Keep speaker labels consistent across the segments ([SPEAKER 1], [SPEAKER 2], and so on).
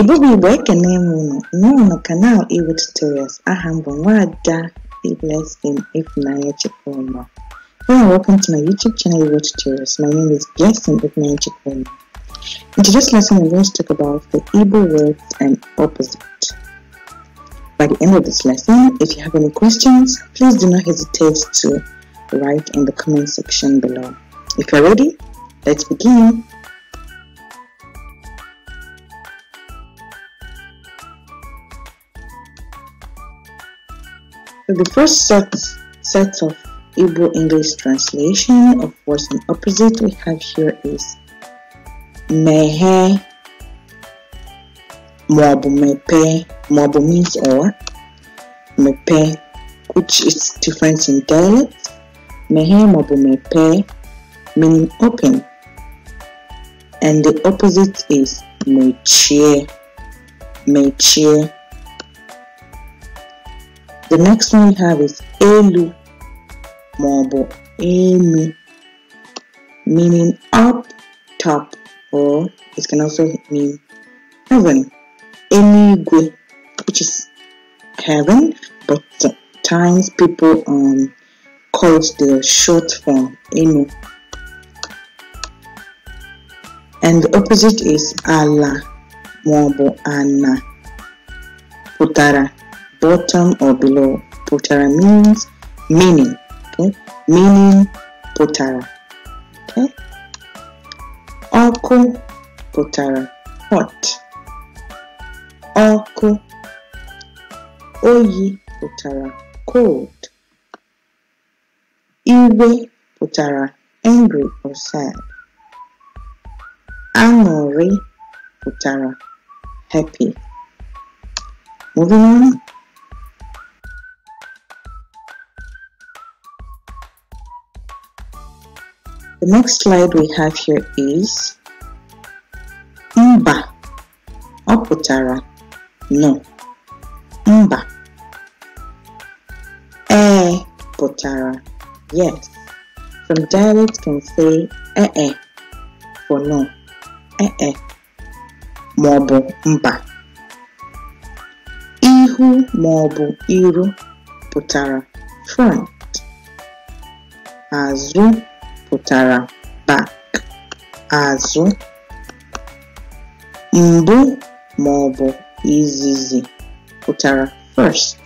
[SPEAKER 1] igbo bụ igbo ekene m unu n'ụlọ kanal iwu tutorials aha m bụ nwada blessing ifunanya chukwuma Hello welcome to my YouTube channel Iwo Tutorials. My name is Blessing Ifunanya Chukwuma. In today's lesson I'm going to talk about the Igbo words and opposite. By the end of this lesson, if you have any questions, please do not hesitate to write in the comment section below. If you're ready, let's begin. So the first set, set of Igbo English translation of words and opposite we have here is mehe maọbụ mepe maọbụ means or mepe which is different in dialect mehe maọbụ mepe meaning open and the opposite is mechie mechie the next one we have is elu mabo enu meaning up top or it can also mean heaven. Enigwe which is heaven but times people um, call it the short form enu. And the opposite is ala mabo ana pụtara bottom or below. Potara means meaning. Okay, meaning potara. Okay, Oko potara hot. Oko oyi potara cold. Iwe potara angry or sad. Anori potara happy. Moving on. The next slide we have here is mba. Ọ no. Mba. E. pụtara yes. From dialect can say eh eh for no. Eh eh maọbụ mba. Ihu maọbụ iru pụtara front. Azụ pụtara back (azụ), mbụ maọbụ izizi pụtara first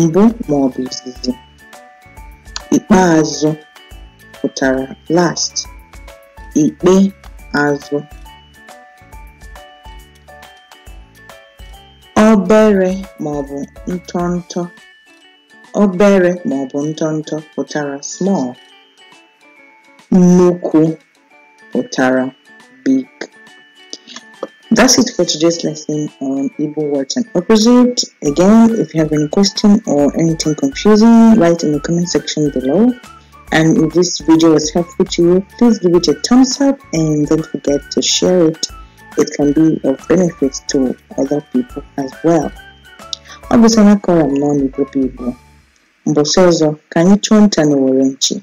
[SPEAKER 1] (mbụ maọbụ izizi), ikpeazụ pụtara last (ikpe azụ). Obere maọbụ ntọntọ (obere maọbụ ntọntọ) pụtara small Nnukwu Utara Big. That's it for today's lesson on Igbo words and opposite. Again, if you have any question or anything confusing, write in the comment section below. And if this video was helpful to you, please give it a thumbs up and don't forget to share it. It can be of benefit to other people as well. Ọ bụsana kọrọ m n'ọnụ Igbo Igbo. Mgbe ọzọ,